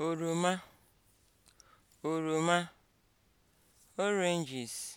oroma oroma oranges